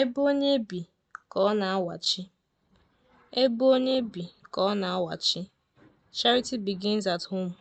Ebe onye bi ka ọ na-awachi, Ebe onye bi ka ọ na-awachi, Charity begins at home.